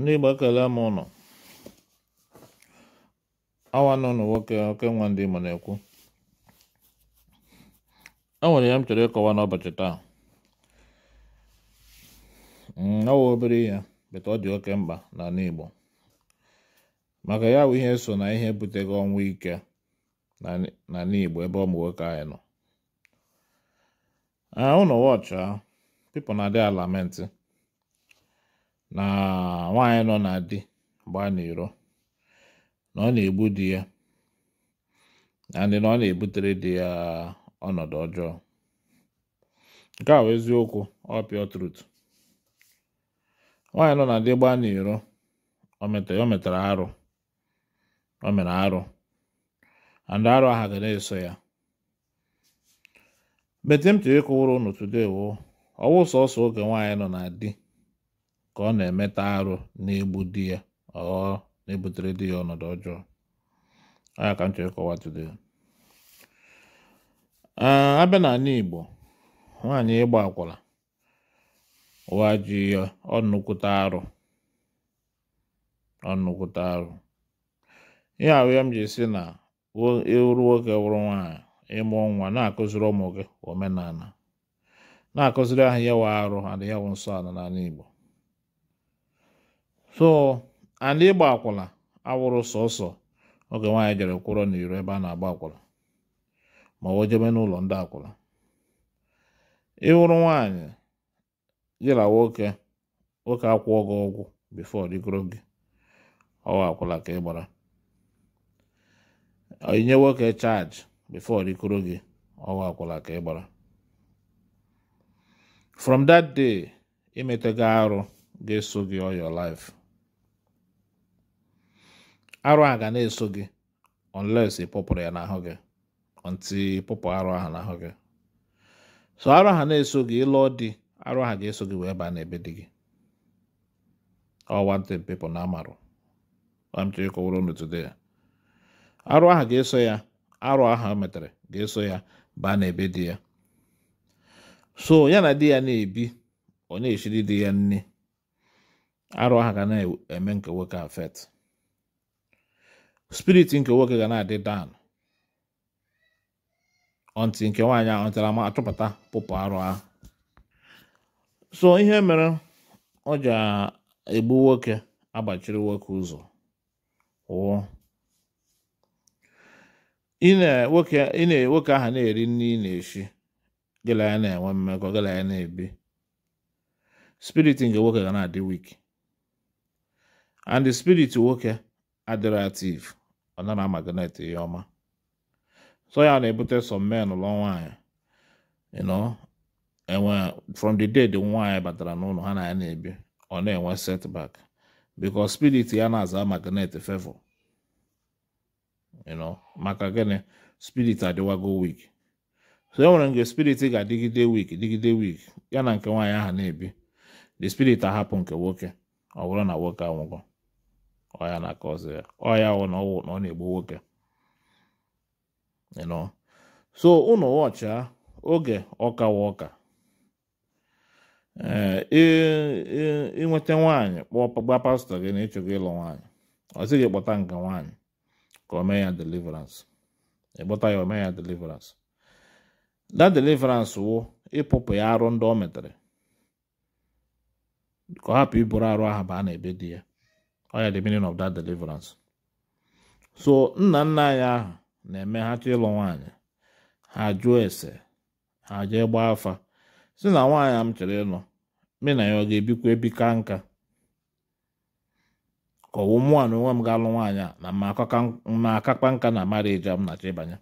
ndị Igbo m ụnụ awa nọ nwoke oke nwa ndị ma na-ekwu Enwere nwere ya m chọrọ ịkọwa n'ụbọchị taa ọwa mm, obere ihe bete ọ dị oke mkpa na Igbo maka ya bụ ihe so na ihe butego ọnwụ ike na Igbo ebe ụmụ nwoke anyị nọ ah, ụnọ wọchị ah, people na-adị alamenti. na nwaanyị nọ na di gbaa n'iro na ọ na-egbu di ya ndị na ọ na-ebutere di ya ọnọdụ ọjọọ nke a bụ eziokwu ọ pịọ trut nwaanyị nọ na di gbaa n'iro o metara arụ o mere arụ andị arụ aha ga na-eso ya betim tiri ịkụwụrụ unu today wo ọwụ sọsọ oge nwaanyị nọ na di ka ọ na-emeta arụ na-egbu di ya ọ na-ebutere di ya ọnọdụ ọjọọ aya ka m chọrọ ịkọwa abịa n'ala Igbo nwaanyị ịgba akwụna ụwa ji ya ọnụkwụta arụ ọnụkwụta arụ ihe ahụ ya m ji si na ịwụrụ e nwoke wụrụ nwaanyị ịmụ nwa na-akụziri ụmụ gị omenala na-akụziri ahụ ya nwe arụ adịghị nsọ ala n'ala Igbo so ala ịgba akwụla awụrụ sọsọ oge nwaanyị jere kwụrọ n'iro ebe a na-agba akwụla ma o jebe n'ụlọ ndị akwụla ịwụrụ nwaanyị jira nwoke nwoke akwụọ gị ọgwụ bifo rigoro gị ọwa akwụla ka ị gbara inye nwoke chaji bifo rigoro gị ọwa akwụla ka ị gbara from that day imetego arụ ga-eso gị all your life arụ a ga na-eso gị unless ịpụpụrụ ya n'ahụ gị nti pụpụ arụ ahụ n'ahụ gị so arụ ahụ na-eso gị ịlụọ di arụ ahụ ga-eso gị wee baa n'ebe di gị ọ wanted people na amarụ amchọ ịkọwara ya arụ ahụ ga-eso ya arụ ahụ o metere ga-eso ya baa n'ebe di ya so ya na di ya na-ebi ọ na-eshiri di ya nne arụ ahụ ga na-eme nke nwoke afet Spirit nke nwoke ga na-adị down ọntị nke nwaanyị ahụ ntara ma achọpụta pụpụ arụ ahụ so ihe mere ọ ji egbu nwoke agbachiri nwoke ụzọ wụọ nwoke ahụ na-eri nri ị na-eshi gịla ya na-enwe mmekọ gịla ya na-ebi spirit nke nwoke ga na-adị wiki and spiriti nwoke adirativ ọ na amagnet ihe ọma so ya na-ebute some men lụọ nwaanyị you know enwe from the day the nwaanyị batara n'ụlọ ha na ya na-ebi ọ na-enwe setback because spirit ya na-aza magnet favor you know maka gịnị spirit adịwago weak so e nwere nke spirit ga-adịgide weak dịgide weak ya na nke nwaanyị aha na-ebi the spirit ahapụ nke nwoke ọ bụrụ na nwoke anwụgo ọya na-aka ya ọya wụ na ọwụ na ọ na-egbu nwoke ịnọ so ụnụ wọcha oge ọka wa ọka ịnweta nwaanyị gba pastọ gị na ịchọgo ịlụ nwaanyị ọ sị gị kpọta nke nwaanyị ka o mee ya deliverance ịkpọta ya ome ya deliverance da deliverance wụ ịpụpụ ya arụ ndị o metere ka ọ hapụ iburu arụ ahụ baa na ebe di ya ọya the meaning of that deliverance so nna nna anyị ahụ na-eme ha chọ ịlụ nwaanyị ha jụọ ese ha jee gbaa afa si na nwaanyị m chọrọ ịlụ me na ya ọ ga-ebikwa ebika nka ka ọwụ mụ na onwe m ga-alụ nwaanyị a na ma akakpa nka na marriage m na-achọ ịbanye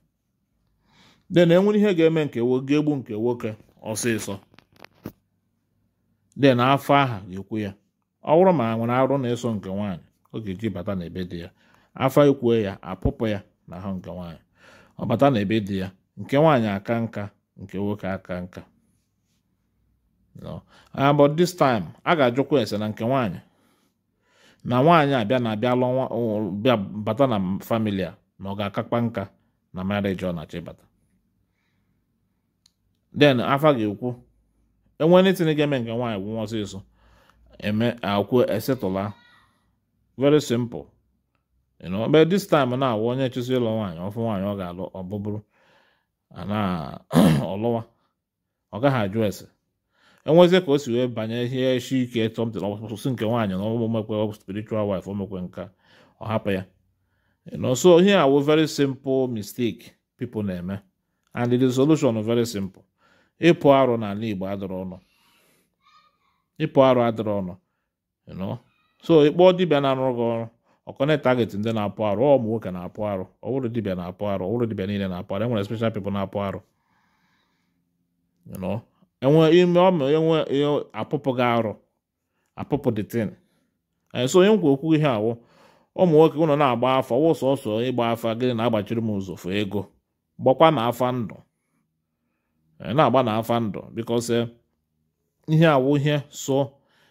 de na enwere ihe ga-eme nke ga-egbu nke nwoke ọsịsọ de na afọ aha ga-ekwu ya ọ bụrụ ma nwere arụ na-eso nke nwaanyị ọ ga-eji bata n'ebe dị ya afọ ikwue ya apụpụ ya na ahụ nke nwaanyị ọ bata n'ebe dị ya nke nwaanyị aka nka nke nwoke aka nka but this time a ga-ajụkwa ese na nke nwaanyị na nwaanyị abịa na abịa lụọ bịa bata na famili na ọ ga-akakpa nka na marriage ọ na-achọ ịbata then afa ga-ekwu enwe anything ga-eme nke nwaanyị gwụnwa ọsịsọ eme akwu esetụla very simple you know but this time na awụ onye chụsị ịlụ nwaanyị ọfụ nwaanyị ọ ga-alụ ọbụbụrụ ana ọlụwa ọ gaghị ajụ ese enwezie ka o si wee banye ihe shi ike tọmtin ọsụsụ nke nwaanyị na ọgbụgbọ mekwe spiritual wife o mekwe nka ọ hapụ ya you so ihe awụ very simple mistake people na-eme and the solution very simple ịpụ arụ n'ala Igbo adọrọ ọnụ ịpụ arụ adịrị ọnụ so ịkpọ dibịa na-arụrụ gị ọrụ ọkọnetaget ndị na-apụ arụ ọ ụmụ nwoke na-apụ arụ ọwụrụ dibịa na-apụ arụ ọwụrụ dibịa niile na-apụ arụ enwere special people na-apụ arụ enwe ime ọmụ enwe e e apụpụ gị arụ apụpụ tin so onye nkwa okwu ihe awụ ụmụ nwoke ụnọ na-agba afa ọwụ sọsọ ịgba afa gịnị na-agbachiri m ụzụ fụ ego gbakwa na afa ndụ e, na-agba na afa ndụ because eh, ihe awụ ihe so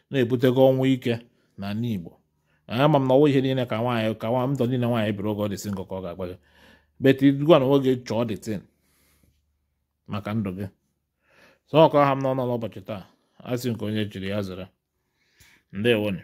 na-ebutego ọnwụ ike na ala Igbo ama m na ọwụ ihe niile ka nwaanyị ka nwa ndụ niile nwaanyị biri oge ọdịsị nkọ ka ọ ga-agba gị beti dugwa na nwoge chọọ dịtin maka ndụ gị sọ ọkọ ha m n'ọnụ n'ụbọchị taa asị nke onye chiri ya zere ndewonu